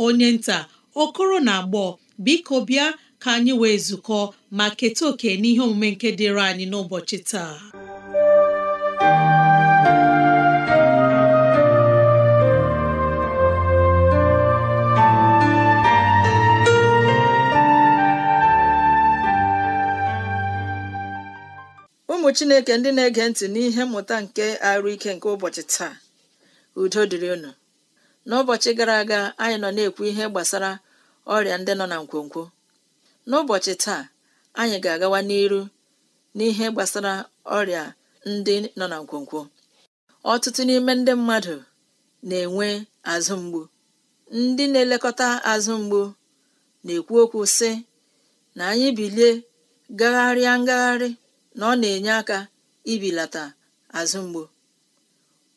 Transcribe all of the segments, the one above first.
onye nta okoro na agbọ biko bịa ka anyị wee zukọ ma keta oke n'ihe omume nke dịịrị anyị n'ụbọchị taa ụmụ Chineke ndị na-ege ntị n'ihe mmụta nke arụ ike nke ụbọchị taa udo dịrị unu n'ụbọchị gara aga anyị nọ na-ekwu ihe gbasara ọrịa ndị nọ na nkwonkwo n'ụbọchị taa anyị ga-agawa n'iru n'ihe gbasara ọrịa ndị nọ na nkwonkwo ọtụtụ n'ime ndị mmadụ na-enwe azụ mgbu ndị na-elekọta azụ mgbu na-ekwu okwu sị na anyị bilie gagharịa ngagharị na ọ na-enye aka ibilata azụ mgbu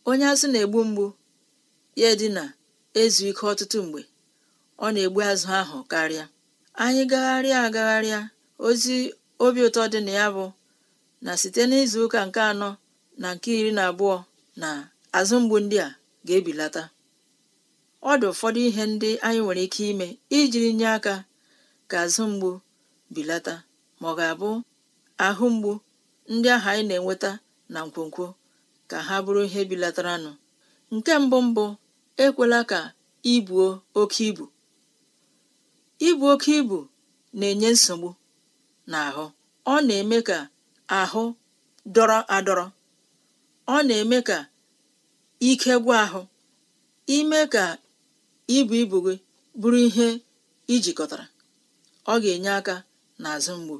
onye azụ na-egbu mgbu ya dị na ezu ike ọtụtụ mgbe ọ na-egbu azụ ahụ karịa anyị gagharịa agagharịa ozi obi ụtọ dị na ya bụ na site n'izu ụka nke anọ na nke iri na abụọ na azụ mgbu ndị a ga-ebilata ọ dị ụfọdụ ihe ndị anyị nwere ike ime ijiri nye aka ka azụ mgbu bilata ma ọ ga-abụ ahụ mgbu ndị ahụ anyị na-enweta na nkwonkwo ka ha bụrụ ihe bilataranụ nke mbụ mbụ ekwela ka ibuo oke ibu ibu oke ibu na-enye nsogbu n'ahụ ọ na-eme ka ahụ dọrọ adọrọ ọ na-eme ka ike gwa ahụ ime ka ibu ibu gị bụrụ ihe ijikọtara ọ ga-enye aka n'azụ mgbu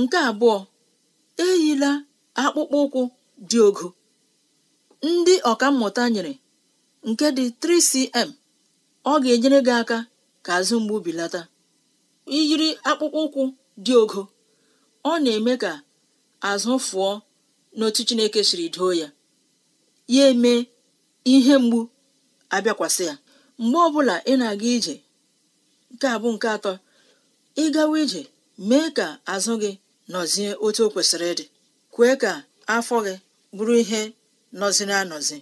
nke abụọ eyila akpụkpọ ụkwụ dị ogo ndị ọkammụta nyere nke dị 3cm ọ ga-enyere gị aka ka azụ mgbu bilata iyiri akpụkpọ ụkwụ dị ogo ọ na-eme ka azụ fụọ n'otu Chineke siri doo ya ya eme ihe mgbu abịakwasị ya mgbe ọbụla ị na-aga ije nke a nke atọ ị gawa ije mee ka azụ gị nọzie otu o kwesịrị ịdị kwee ka afọ gị bụrụ ihe nọziri anọzi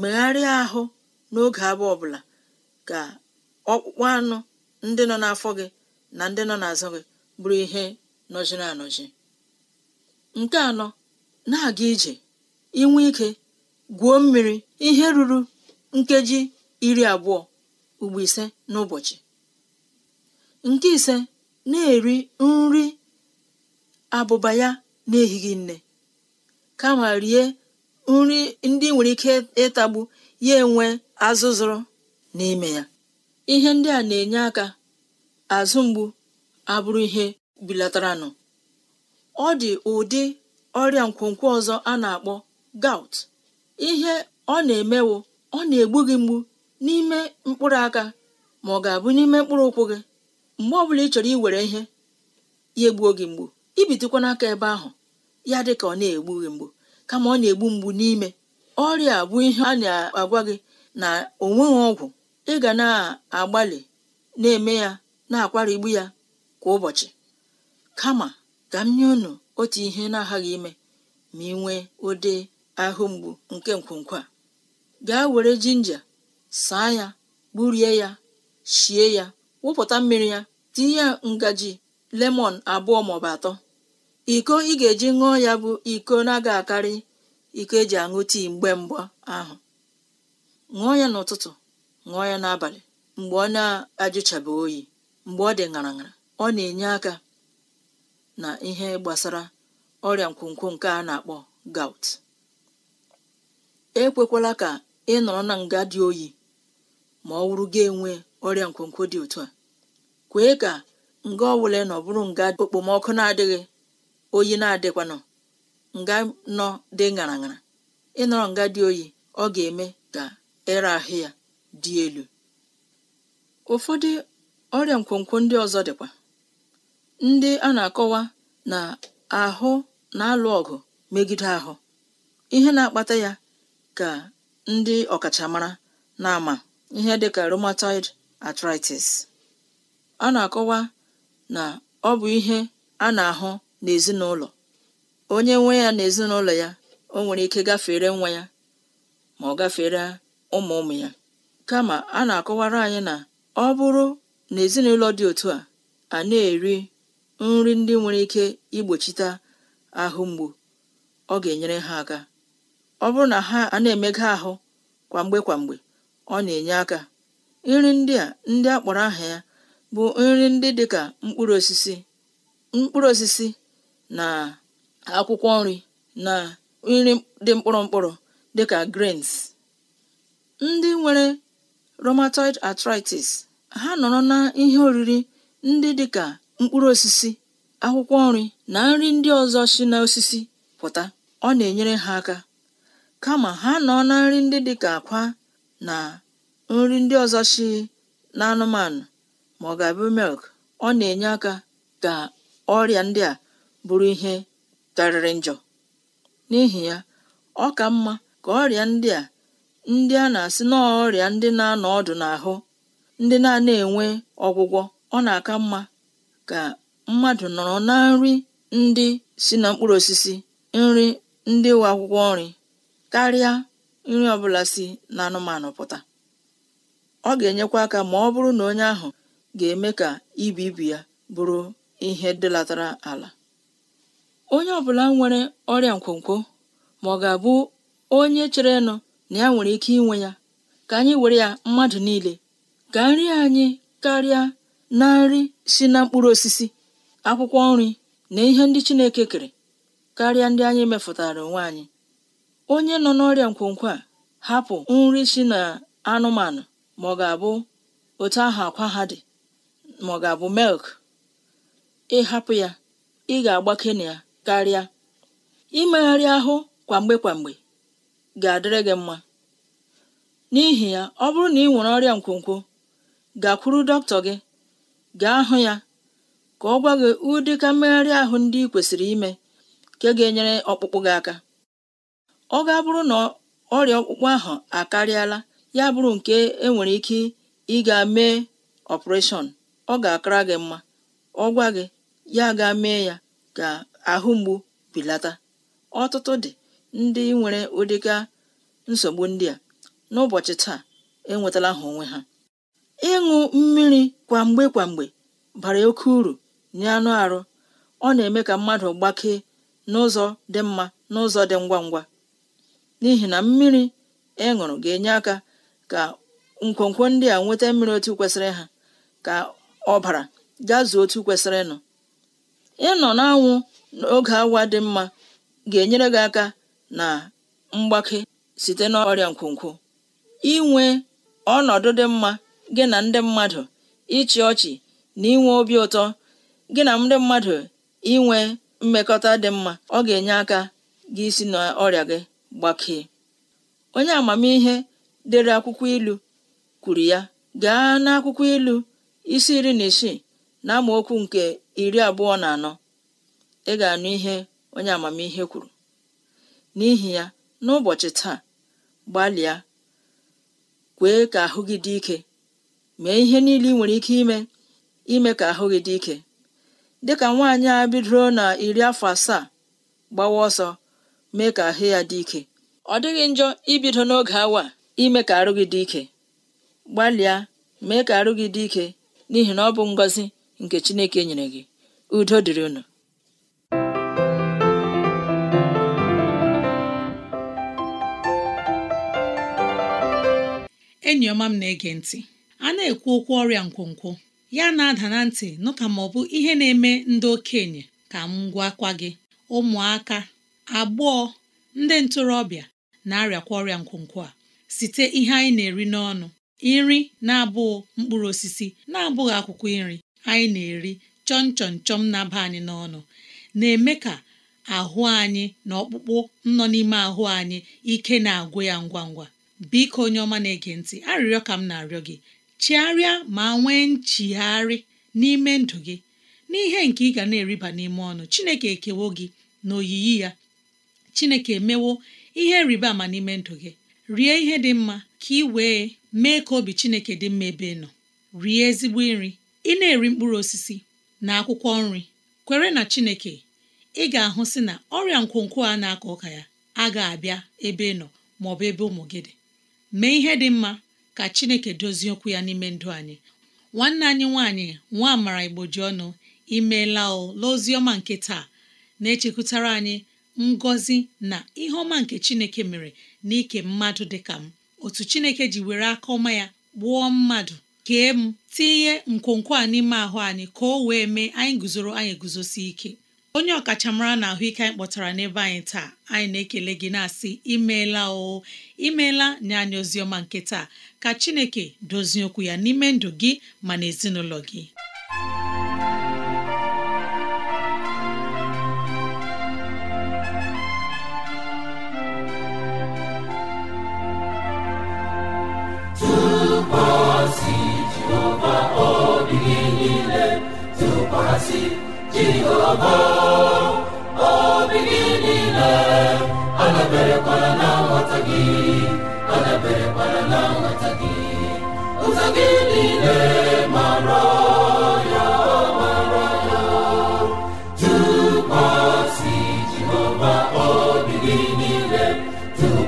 megharịa ahụ n'oge abụọ ọbụla ka ọkpụkpụ anụ ndị nọ n'afọ gị na ndị nọ n'azụ gị bụrụ ihe nọjiri anọji nke anọ na-aga ije inwe ike gwuo mmiri ihe ruru nkeji iri abụọ ugbo ise n'ụbọchị nke ise na-eri nri abụba ya n'ehighị nne kama rie nri ndị nwere ike ịtagbu ya enwe azụzụrụ n'ime ya ihe ndị a na-enye aka azụ mgbu abụrụ ihe bilataranụ ọ dị ụdị ọrịa nkwonkwo ọzọ a na-akpọ gout ihe ọ na-emewo ọ na-egbu gị mgbu n'ime mkpụrụ aka ma ọ ga-abụ n'ime mkpụrụ ụkwụ gị mgbe ọbụla ị chọrọ iwere ihe ya egbuo gị mgbu ibitekwana aka ebe ahụ ya dị ka ọ na-egbu gị mgbu kama ọ na-egbu mgbu n'ime ọrịa bụ ihe a na-agwa gị na onweghị ọgwụ ị ga na-agbalị na-eme ya na-akwarigbu ya kwa ụbọchị kama ka m nye unu otu ihe na-aghaghị ime ma ị nwee ụdị ahụ mgbu nke nkwonkwo a gaa were jinja saa ya gburie ya shie ya wụpụta mmiri ya tinye ngaji lemọn abụọ maọbụ atọ iko ị ga-eji ṅụọ ya bụ iko na-aga akarị iko eji aṅụ tii mgbe mgba ahụ ṅụọ ya n'ụtụtụ ṅụọ ya n'abalị mgbe ọ na-ajụchabeghị oyi mgbe ọ dị ṅara ṅara ọ na-enye aka na ihe gbasara ọrịa nkwonkwo nke a na-akpọ gout ekwekwala ka ị nọrọ na nga dị oyi ma ọ wụrụ gị enwe ọrịa nkwonkwo dị otu a kwee ka nga ọbụla nọ bụrụ nga okpomọkụ na-adịghị oyi na-adịkwanụ nga nọ dị ṅara ịnọrọ nga dị oyi ọ ga-eme ka ere ahụ ya dị elu ụfọdụ ọrịa nkwonkwo ndị ọzọ dịkwa ndị a na-akọwa na ahụ na-alụ ọgụ megide ahụ ihe na-akpata ya ka ndị ọkachamara na-ama ihe dịka rheumatoid arthritis a na-akọwa na ọ bụ ihe a na-ahụ n'ezinụlọ onye nwe ya na ezinụlọ ya o nwere ike gafere nwa ya ma ọ gafere ụmụ ụmụ ya kama a na-akọwara anyị na ọ bụrụ na ezinụlọ dị otu a a na-eri nri ndị nwere ike igbochite ahụ mgbu ọ ga-enyere ha aka ọ bụrụ na ha a na-emega ahụ kwamgbe kwamgbe ọ na-enye aka nri ndị a ndị a kpọrọ aha ya bụ nri ndị dịka mkpụrụ osisi mkpụrụ osisi na akwụkwọ nri na nri dị mkpụrụ mkpụrụ dịka grains ndị nwere rheumatoid arthritis ha nọrọ na ihe oriri ndị dịka mkpụrụ osisi akwụkwọ nri na nri ndị ọzọ si n'osisi pụta ọ na-enyere ha aka kama ha nọ na nri ndị dịka akwa na nri ndị ọzọ si anụmanụ ma ọ ọ na-enye aka ka ọrịa ndị a bụrụ ihe karịrị njọ n'ihi ya ọ ka mma ka ọrịa ndị a ndị a na-asị n'ọrịa ndị na-anọ ọdụ n'ahụ ndị na-ana enwe ọgwụgwọ ọ na-aka mma ka mmadụ nọrọ na nri ndị si na mkpụrụ osisi nri ndị nwe akwụkwọ nri karịa nri ọbụla si na anụmanụ pụta ọ ga-enyekwa aka ma ọ bụrụ na onye ahụ ga-eme ka ibu ibu ya bụrụ ihe dịlatara ala onye ọbụla nwere ọrịa nkwonkwo ma ọ ga-abụ onye chere nụ na ya nwere ike inwe ya ka anyị were ya mmadụ niile ka nri anyị karịa na nri si na mkpụrụ osisi akwụkwọ nri na ihe ndị Chineke kere karịa ndị anyị mefụtara onwe anyị onye nọ n'ọrịa nkwonkwo a hapụ nri si na anụmanụ ma ọ otu ahụ akwa ha dị ma ọ ga-abụ milk ịhapụ ya ị ga-agbake na ya karịa imegharị ahụ kwamgbe kwamgbe ga-adịrị gị mma n'ihi ya ọ bụrụ na ị nwere ọrịa nkwonkwo gakwuru dọkịta gị gaa hụ ya ka ọ gwa gị ka mmegharị ahụ ndị ị kwesịrị ime nke ga-enyere ọkpụkpụ gị aka ọ ga-abụrụ na ọrịa ọkpụkpụ ahụ akarịala ya bụrụ nke enwere ike ịga mee ọpụreshọn ọ ga-akara gị mma ọ gwa gị ya ga mee ya ga. ahụ mgbu belata ọtụtụ dị ndị nwere ụdịga nsogbu ndị a n'ụbọchị taa enwetala ha onwe ha ịṅụ mmiri kwamgbe kwamgbe bara oke uru nye anụ arụ ọ na-eme ka mmadụ gbakee n'ụzọ dị mma n'ụzọ dị ngwa ngwa n'ihi na mmiri ị e ṅụrụ ga-enye aka ka nkwonkwo ndị a nweta mmiri otu kwesịrị ha ka ọbara gazuo otu kwesịrị ịnọ ịnọ n'anwụ n'oge awa dị mma ga-enyere gị aka na mgbake site n'ọrịa nkwonkwo inwe ọnọdụ dị mma gị na ndị mmadụ ịchị ọchị na inwe obi ụtọ gị na ndị mmadụ inwe mmekọta dị mma ọ ga-enye aka gị isi n'ọrịa gị gbakee onye amamihe dere akwụkwọ ilu kwuru ya gaa n'akwụkwọ ilu isi iri na isii na nke iri abụọ na anọ ị ga-anụ ihe onye amamihe kwuru n'ihi ya n'ụbọchị taa gbalịa kwee ka ahụ gị dị ike mee ihe niile ị nwere ike ime ime ka ahụ gị dị ike dị ka nwaanyị a bidoro na iri afọ asaa gbawa ọsọ mee ka ahụ ya dị ike ọ dịghị njọ ibido n'oge awa ime ka arụ gị dị ike gbalịa mee ka arụ gị dị ike n'ihi na ọ bụ ngọzi nke Chineke nyere gị udo dịrị unu enyi ọma m na-ege ntị a na-ekwu okwu ọrịa nkwonkwo ya na-ada na ntị nụ ka ma ọ bụ ihe na-eme ndị okenye ka m gwakwa gị ụmụaka agbọọ ndị ntorobịa na-arịakwa ọrịa nkwonkwo a site ihe anyị na-eri n'ọnụ nri na-abụghị mkpụrụ osisi na-abụghị akwụkwọ nri anyị na-eri chọn chọn chọm na-aba anyị n'ọnụ na-eme ka ahụ anyị na ọkpụkpụ nọ n'ime ahụ anyị ike na-agwụ ya ngwa ngwa biko onye ọma na-ege ntị arịrịọ ka m na-arịọ gị chigharịa ma nwee nchigharị n'ime ndụ gị n'ihe nke ị ga na-eriba n'ime ọnụ Chineke ekewo gị na oyiyi ya Chineke emewo ihe nrịba ama n'ime ndụ gị rie ihe dị mma ka ị wee mee ka obi Chineke dị mma ebe ị nọ rie ezigbo nri ị na-eri mkpụrụ osisi na akwụkwọ nri kwere na Chineke ị ga-ahụ sị na ọrịa nkwonkwo a na-akọ ụka ya agaghị abịa ebe ị nọ maọbụ ebe ụmụ gị dị mee ihe dị mma ka chineke dozie okwu ya n'ime ndụ anyị nwanne anyị nwaanyị nwa amara igboji ọnụ imeela o n'ozi ọma nke taa na-echekwutara anyị ngọzi na ihe ọma nke chineke mere na ike mmadụ dị ka m otu chineke ji were aka ọma ya gbuo mmadụ kee m tinye nkwonkwo a n'ime ahụ anyị ka o wee mee anyị guzoro anyị eguzosi ike onye ọkachamara na ahụike anyị kpọtara n'ebe anyị taa anyị na-ekele gị na-asị imeela oo imeela nye anyị oziọma nke taa ka Chineke dozie okwu ya n'ime ndụ gị ma na ezinụlọ gị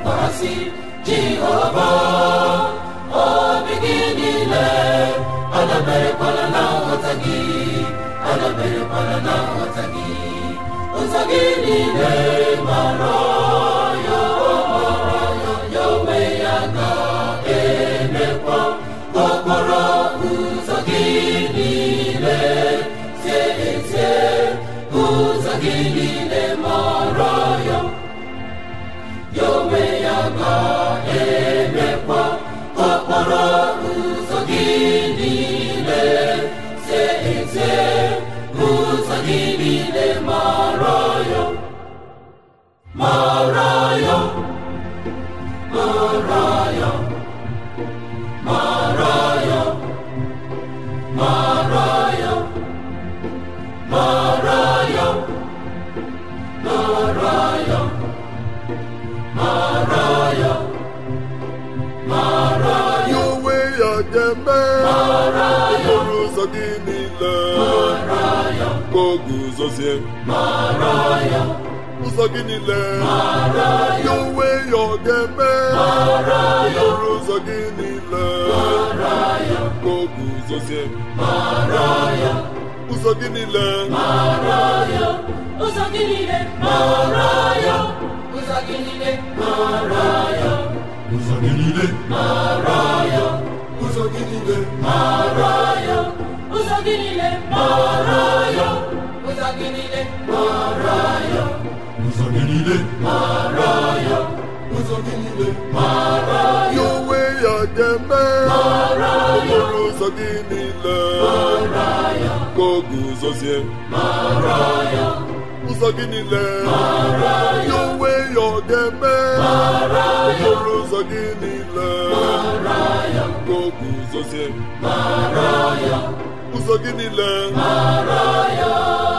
tụkwasị Jehova obi gị niile adaberekwala na nghọta gị adaberekwala na nghọta gị ụzọ gị niile mara onwe ya ga-emekwa okporo ụzọ gị niile tie na- emekwa okporo ụzọ gị niile se eze ụzọ gị niile mara n'ezie ụzọ gị niile ya ya ọ ga-eme ọrụ ụzọ gị niile ka o guzozie ụzọ gị niile ụzọ ụzọ gị niile mara ya ụzọ gị niile mara ya ụzọ gị niile mara ya onwe ya ga-eme mara ya ụzọ gị niile mara ya ka ọ guzozie mara ya ụzọ gị niile mara ya onwe ya ọ ya ụzọ gị niile mara ya ka ọ guzozie mara ya ụzọ gị niile mara ya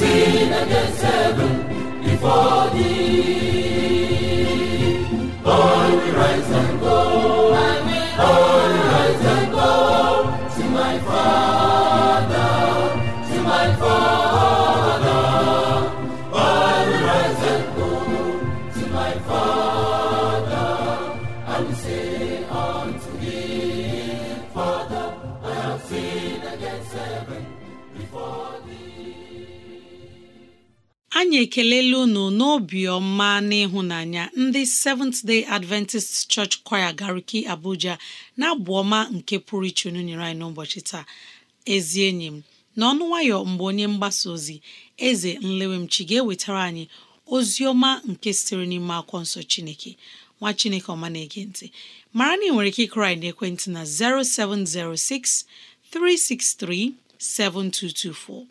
Chineke nsogbu ife All and All and to my father to my father ekelele ekelela unu n'obiọma na ndị Seventh Day Adventist Church Choir Gariki Abuja na-abụ ọma nke pụrụ iche unu nyere anyị n'ụbọchị taa ezi enyi m n'ọnụ nwayọ mgbe onye mgbasa ozi eze nlewemchi ga-ewetara anyị ozi ọma nke sitere n'ime akwụkwọ nsọ Chineke nwa Chineke ọma na-ege ntị mara na ị nwere ike ịkụrụ anyị n'ekwentị na 0706 363 7224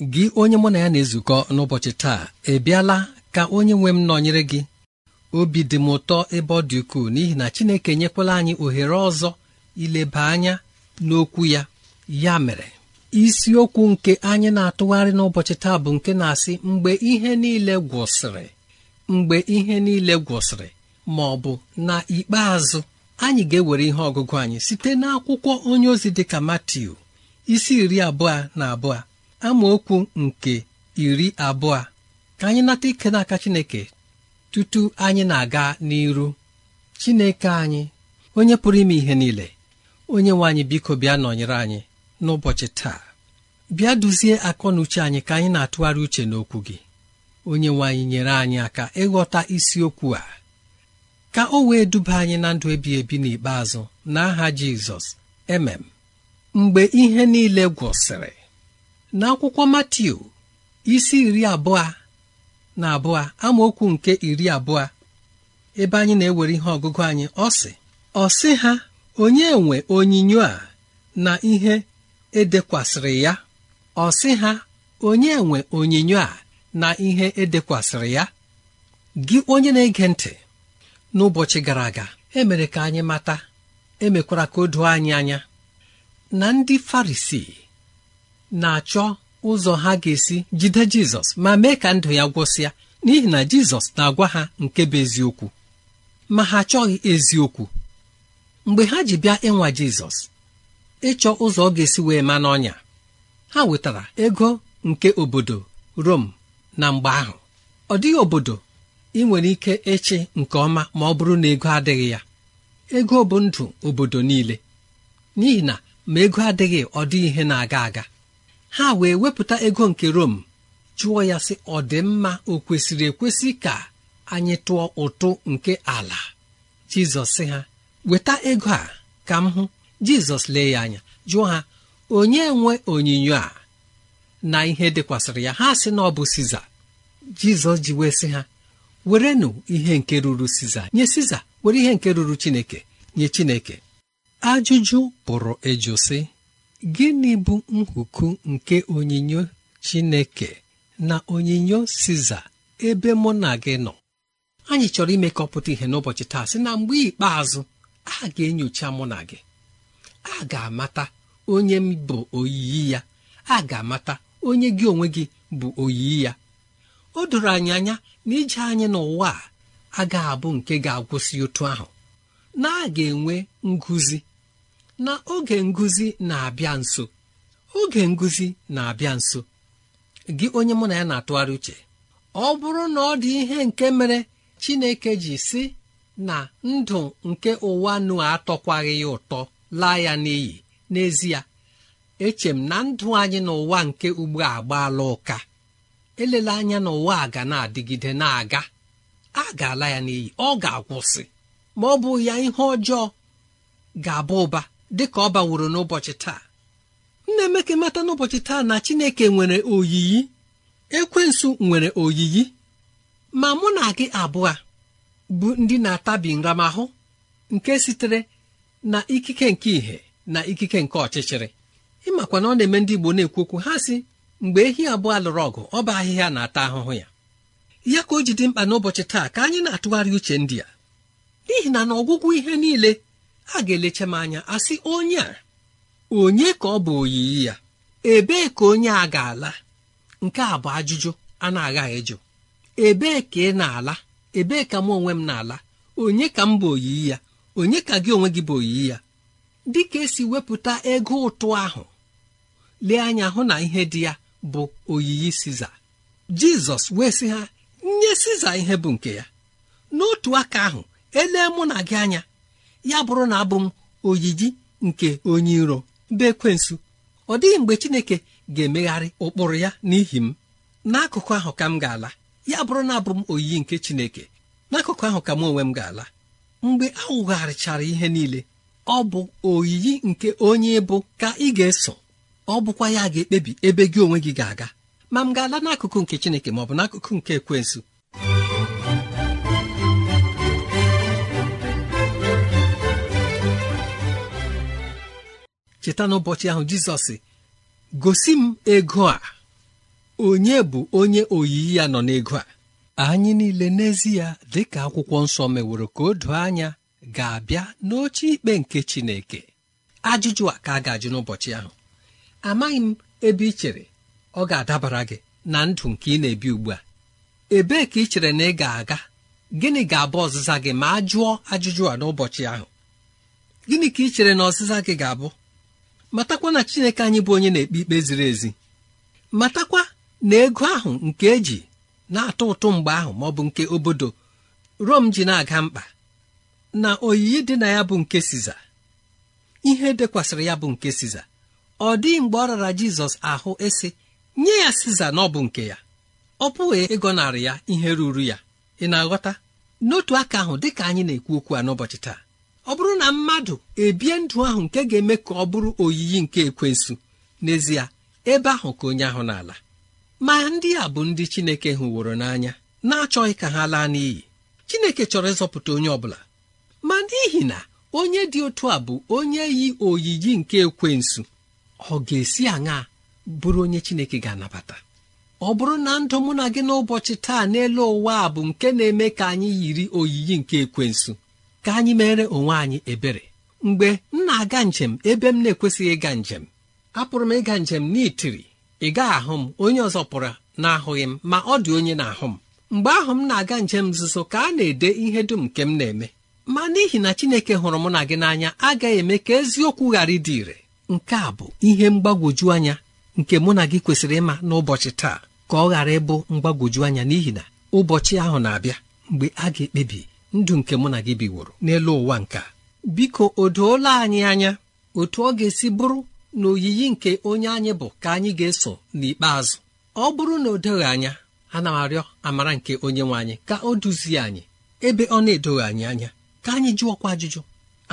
gị onye mụ na ya na-ezukọ n'ụbọchị taa ebiala ka onye nwe m nọnyere gị obi dị m ụtọ ebe ọ dị ukwuu n'ihi na Chineke nyekwala anyị ohere ọzọ ileba anya n'okwu ya ya mere isiokwu nke anyị na-atụgharị n'ụbọchị taa bụ nke na-asị mgbe ihe niile gwụsịrị mgbe ihe niile gwụsịrị ma ọ bụ na ikpeazụ anyị ga-ewere ihe ọgụgụ anyị site n'akwụkwọ onye ozi ka Matiu isi iri abụọ na abụọ amaokwu nke iri abụọ ka anyị nata ike n'aka Chineke tutu anyị na-aga n'iru Chineke anyị onye pụrụ ime ihe niile onye nwe anyị biko bịa nọnyere anyị n'ụbọchị taa bịa duzie akọ na uche anyị ka anyị na-atụgharị uche n'okwu gị onye nwe anyị nyere anyị aka ịghọta isiokwu a ka o wee duba anyị na ndụ ebi ebi n'ikpeazụ n'aha Jizọs emem mgbe ihe niile gwụsịrị n'akwụkwọ Matiu isi iri abụọ na abụọ amaokwu nke iri abụọ ebe anyị na-ewere ihe ọgụgụ anyị ọ sị ọ sị ha onye nwe onyinyo a na ihe edekwasịrị ya ọ ha onye nwe onyinyo a na ihe edekwasịrị ya gị onye na-ege ntị n'ụbọchị gara aga emere ka anyị mata emekwara ka o doo anyị anya na ndị Farisii na-achọ ụzọ ha ga-esi jide jizọs ma mee ka ndụ ya gwụsịa n'ihi na jizọs na-agwa ha nke bụ eziokwu ma ha achọghị eziokwu mgbe ha ji bịa ịnwa jizọs ịchọ ụzọ ọ ga-esi wee ma n'ọnya ha wetara ego nke obodo rom na mgbe ahụ ọ dịghị obodo ị nwere ike ịchị nke ọma ma ọ bụrụ na ego adịghị ya ego bụ ndụ obodo niile n'ihi na ma ego adịghị ọ dị ihe na-aga aga ha wee wepụta ego nke Rom jụọ ya sị ọ dị mma o kwesịrị ekwesị ka anyị tụọ ụtụ nke ala Jizọs sị ha weta ego a ka m hụ Jizọs lee ya anya jụọ ha onye nwe onyinyo a na ihe dịkwasịrị ya ha sị na ọ bụ Siza Jizọs ji wee sị ha werenụ ihe nke ruru Siza nye Siza were ihe nke ruru Chineke nye Chineke ajụjụ pụrụ ịjụ sị gịnị bụ nhuku nke onyinyo chineke na onyinyo siza ebe mụ na gị nọ anyị chọrọ ime ka ọ pụta ihe n'ụbọchị taa sị na mgbe ikpeazụ a ga-enyocha mụ na gị a ga-amata onye m bụ oyiyi ya a ga-amata onye gị onwe gị bụ oyiyi ya o doro anyị anya na ije anyị n'ụwa a ga abụ nke ga-agwụsị otu ahụ na a ga-enwe nguzi na oge nguzi na-abịa nso oge nguzi na-abịa nso gị onye mụ na ya na-atụgharị uche ọ bụrụ na ọ dị ihe nke mere Chineke ji si na ndụ nke ụwa nụ atọkwaghị ya ụtọ laa ya n'iyi n'ezie echem na ndụ anyị n'ụwa nke ugbu a agbaala ụka elela anya n'ụwa a ga na-adịgide na-aga a ga-ala ya n'iyi ọ ga-akwụsị ma ọ bụ ya ihe ọjọọ ga-aba ụba dị ka ọ baworo n'ụbọchị taa nne emeke emeka mata n'ụbọchị taa na chineke nwere oyiyi ekwensu nwere oyiyi ma mụ na gị abụọ bụ ndị na-atabi nramahụ nke sitere na ikike nke ìhè na ikike nke ọchịchịrị ịmakwa na ọ na-eme ndị Igbo na-ekwu okwu ha si mgbe ehi abụọ lụrụ ọgụ ọ bụ ahịhịa na-ata ahụhụ ya ya ka o ji dị mkpa n'ụbọchị taa ka anyị na-atụgharị uche ndị a n'ihi na n'ọgwụgwụ ihe niile ha ga-elecha m anya asị onye a onye ka ọ bụ oyiyi ya ebee ka onye a ga-ala nke a bụ ajụjụ a na agaghị ịjụ ebee ka ị na-ala ebee ka m onwe m na-ala onye ka m bụ oyiyi ya onye ka gị onwe gị bụ oyiyi ya dị ka esi wepụta ego ụtụ ahụ lee anya hụ na ihe dị ya bụ oyiyi siza jizọs wee sị ha nye siza ihe bụ nke ya n'otu aka ahụ elee mụ na gị anya ya bụrụ na abụ m ojiji nke onye iro bụ ekwensu ọ dịghị mgbe chineke ga-emegharị ụkpụrụ ya n'ihi m n'akụkụ ahụ ka m ga-ala ya bụrụ na abụ m oyiyi nke chineke n'akụkụ ahụ ka m onwe m ga-ala mgbe a wụgharịchara ihe niile ọ bụ oyiyi nke onye bụ ka ị ga-eso ọ bụkwa ya ga-ekpebi ebe gị onwe gị ga-aga ma m ga-ala n'akụkụ nke chineke ma ọ bụ n'akụkụ nke ekwensụ cheta n'ụbọchị ahụ jizọs gosi m ego a onye bụ onye oyiyi ya nọ n'ego a anyị niile n'ezie dị ka akwụkwọ nsọ meworo ka o doo anya ga-abịa n'oche ikpe nke chineke ajụjụ a ka a ga-ajụ n'ụbọchị ahụ amaghị m ebe ị chere ọ ga-adabara gị na ndụ nke ị na-ebi ugbu a ebee ka ị chere na ị ga-aga gịnị ga-abụ ọzịza gị ma a jụọ ajụjụ a n'ụbọchị ahụ gịnị ka ị chere na ọzịza gị ga-abụ matakwa na chineke anyị bụ onye na-ekpe ikpe ziri ezi matakwa na ego ahụ nke eji na-atọ ụtụ mgbe ahụ ma ọ bụ nke obodo rom ji na-aga mkpa na oyiyi dị na ya bụ nke siza ihe dekwasịrị ya bụ nke siza ọ dịghị mgbe ọ rara jizọs ahụ esi nye ya siza na ọ bụ nke ya ọ pụghị ịgọnarị ya ihe ruru ya ị na-aghọta n'otu aka ahụ dị ka anyị na-ekwu okwu a n'ụbọchị taa ọ bụrụ na mmadụ ebie ndụ ahụ nke ga-eme ka ọ bụrụ oyiyi nke ekwensu n'ezie ebe ahụ ka onye ahụ n'ala ma ndị a bụ ndị Chineke hụworo n'anya na-achọghị ka ha laa n'iyi Chineke chọrọ ịzọpụta onye ọ bụla, ma n'ihi na onye dị otu a bụ onye yi oyiyi nke ekwensu ọ ga-esi aṅa bụrụ onye Chineke ga-anabata ọ bụrụ na ndụ mụ na gị n'ụbọchị taa n'elu ụwa a bụ nke na-eme ka anyị yiri oyiyi nke ekwensu ka anyị mere onwe anyị ebere mgbe m na-aga njem ebe m na-ekwesịghị ịga njem apụrụ m ịga njem n'itiri ị gaghị ahụ m onye ọzọ pụrụ na-ahụghị m ma ọ dị onye na-ahụ m mgbe ahụ m na-aga njem nzuzo ka a na-ede ihe dum nke m na-eme ma n'ihi na Chineke hụrụ mụ na gị n'anya agaghị eme ka eziokwu ghara ịdị ire nke a bụ ihe mgbagwoju anya nke mụ na gị kwesịrị ịma n'ụbọchị taa ka ọ ghara ịbụ mgbagwoju anya n'ihi na ụbọchị ahụ na-abịa mgbe a ga-ekpebi ndụ nke mụ na gị biworo n'elu ụwa nka biko o doola anyị anya otu ọ ga-esi bụrụ na oyiyi nke onye anyị bụ ka anyị ga-eso n'ikpeazụ ọ bụrụ na o doghị anya ana m arịọ amara nke onye nwe anyị ka o duzie anyị ebe ọ na-edoghị anyị anya ka anyị jụọkwa ajụjụ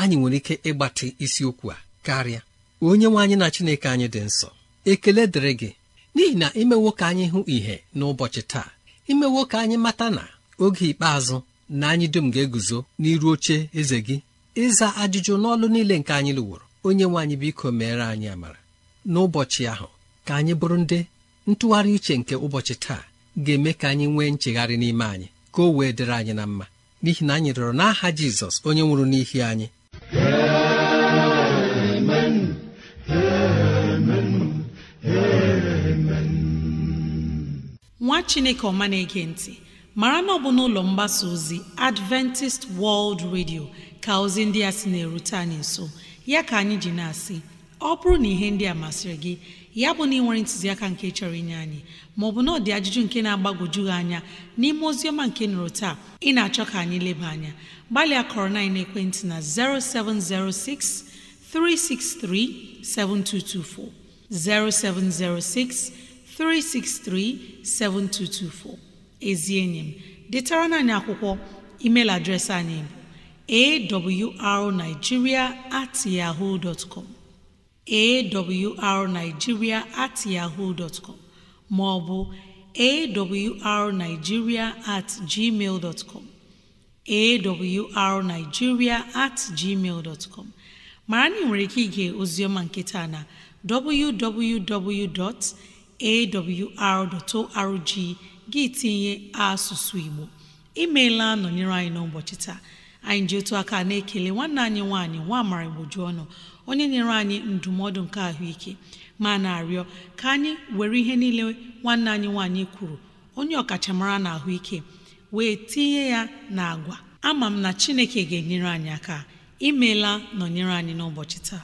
anyị nwere ike ịgbatị isiokwu a karịa onye nwe anyị na Chineke anyị dị nsọ ekele dịrị gị n'ihi na imewo ka anyị hụ ìhè n'ụbọchị taa imewo ka anyị mata na oge ikpeazụ na anyị dum ga-eguzo n'iru oche eze gị ịza ajụjụ n'ọlụ niile nke anyị lụworo onye nwe anyị biko meere anyị amara n'ụbọchị ahụ ka anyị bụrụ ndị ntụgharị uche nke ụbọchị taa ga-eme ka anyị nwee nchegharị n'ime anyị ka o wee dịrị anyị na mma n'ihi na anyị rịọrọ n'aha Jizọs onye nwụrụ n'ihi anyị nwa Chineke ọma na-ege ntị mara na ọ bụ n'ụlọ mgbasa ozi adventist world radio ka ozi ndị a sị na-erute anyị nso ya ka anyị ji na-asị ọ bụrụ na ihe ndị a masịrị gị ya bụ na ị nwere ntụziaka nke chọrọ inye anyị maọbụ na ọdị ajụjụ nke na-agbagwoju gị anya n'ime oziọma nke nụrụ taa ị na-achọ ka anyị leba anya gbalịa kọrọ na ekwentị na 0706 363 7224 0706 363 7224 ezi enyi m detara anyị akwụkwọ email adreesị anyị bụ awrnigeria at yahoo dot com awrnigeria at yahoo dot com ma ọ bụ awrnigeria at gmail dot com awrnigeria at gmail dot com mara na ị nwere ike ige ọma nketa na www.awr.org gị tinye asụsụ igbo imeela nọnyere anyị n'ụbọchị taa anyị ji otu aka na-ekele nwanne anyị nwaanyị nwa amara igboju ọnụ onye nyere anyị ndụmọdụ nke ahụike ma na-arịọ ka anyị were ihe niile nwanne anyị nwaanyị kwuru onye ọkachamara na ahụike wee tinye ya na agwa ama m na chineke ga-enyere anyị aka imeela nọnyere anyị n'ụbọchị taa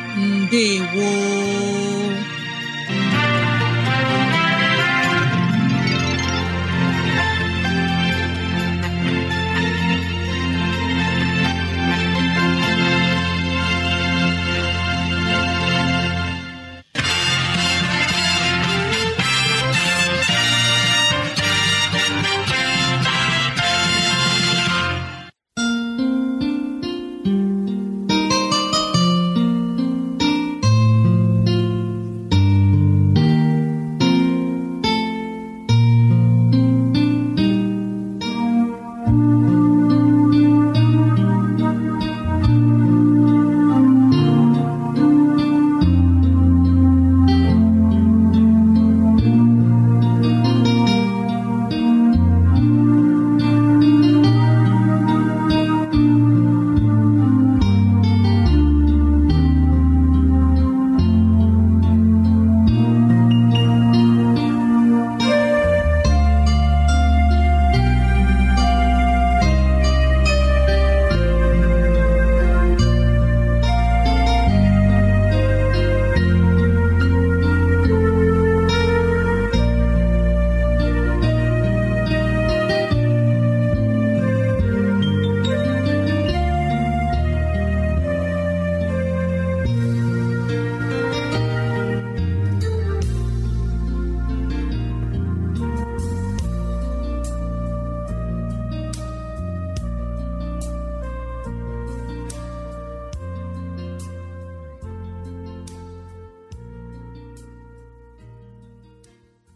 ndewo